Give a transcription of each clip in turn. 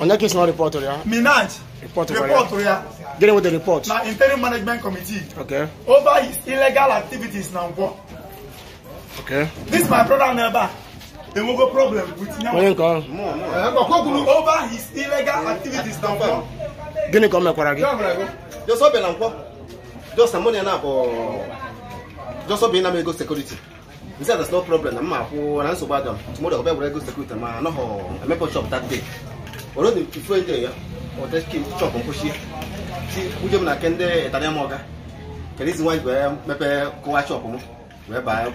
On that case, not report to oh, ya. Minaj. Report to oh, report to oh, ya. Get with the report. Now, interim management committee. Okay. Over his illegal activities now. Okay. This my brother neighbor. There will go problem with him. Eh, Over his illegal activities now. Gini come here, again. Just open now. Just a money now for. Just open now. Go security. He said there's no problem. I'm not. I'm not so bad. Tomorrow I'll be able to go security. Man, no, I'm eh, not shop that day. obodo ifu eje ya ụtaki chọpụ nkwụchi si m na nke ndị ịtara m ọga kedu izi nwaanyị wee mepee baa ya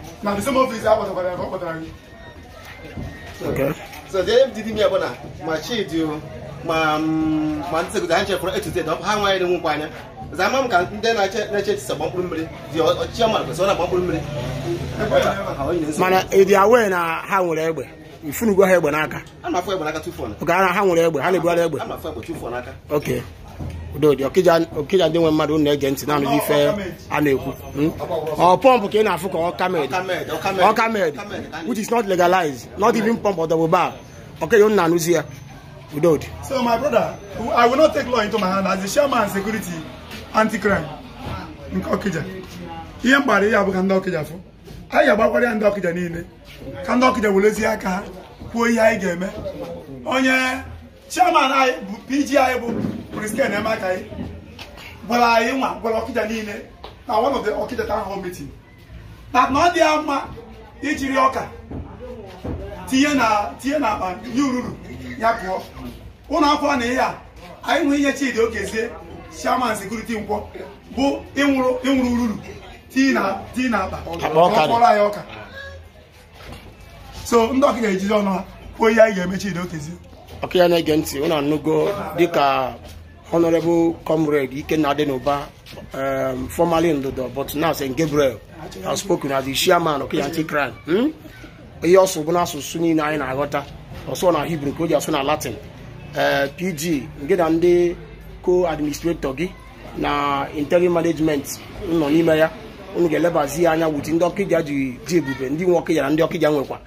ma chidi ma ma ha za ka nde na ọ na-agba mkpụrụ mmiri mana awe na ha nwere egbe ifunugo ha egbe n'aka oge ara ha nwere egbe ha na-ebugharị egbe egbe oke udodi ọkija ndị nwe mmadụ na-ege ntị na-anụzi ife a ekwu hmm? ọ pọmpụ ka ị na-afụ ka ọkamed ọkamed which is not legalized not even pump or double bar ọkeghị m na-anụzi ya udodi so my brother i will not take law into my hand as the chairman security anti-crime nke ọkija ihe mgbara ihe abụghị ndị ọkija fụ anyị ga-agbakwara ya ndị ọkịja niile ka ndị ọkịja werezie aka ha kwuo ihe anyị ga-eme onye chairman anyị bụ pg anyị bụ prisken emeka anyị gwara anyị nwa gwara ọkịja niile na one ọkịja town hall na na ọ dị ya mma ijiri ọka tinye na tinye na akpa nye ururu ya pụọ ụlọ akwụkwọ na ihe a anyị nwee ihe Chidi Okezie chairman sekuriti nkwọ bụ ịnwụrụ ururu tii na-akpa ọkpọrọ anyị ọka so ndị ọka ga-ejizi ọnụ ha kwuo ihe anyị ga-emechi ide okezi ọkụ ya na-ege ntị ụnụ anụgo dịka honorable comrade ikenna dị n'ụba um, formerly ndodo but now st gabriel has spoken as the chairman of anti crime hmm? ihe ọsụ bụ n'asụsụ niile anyị na-aghọta ọsọ na hibru ka o ji asụ na latin eh, pg nke na ndị co-administrator gị na interim management nọ n'ime ya unu ga-elebazi ya anya wuti ndị ọkịja ji ji ebube ndị nwe ọkịja na ndị ọkịja nwekwa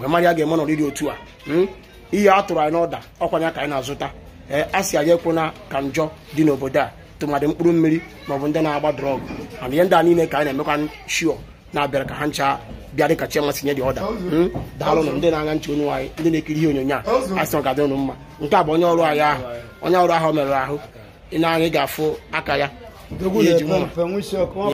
wee mara ya ga-eme n'ọrịrị otu a hmm? ihe a tụrụ anyị n'ọda ọkwa ya ka anyị na-azụta ee eh, a sị anyị na ka njọ dị n'obodo a tụmadị mkpụrụ mmiri maọbụ ndị na-agba drọgụ mana ihe ndị a niile ka anyị na-emekwa shio na-abịara ka ha ncha bịa dị kacha masị nye dị ọda hmm? daalụnụ ndị na-anya nche onye anyị ndị na-ekiri ihe onyonyo a a sị ga-adị mma nke a bụ onye ọrụ anyị ahụ onye ọrụ ahụ merụrụ ahụ ị na-anya ga-afụ aka ya